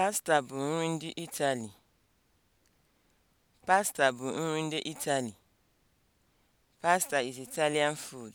Pasta bụ nri ndị Itali. Pasta bụ nri ndị Itali. Pasta is Italian food.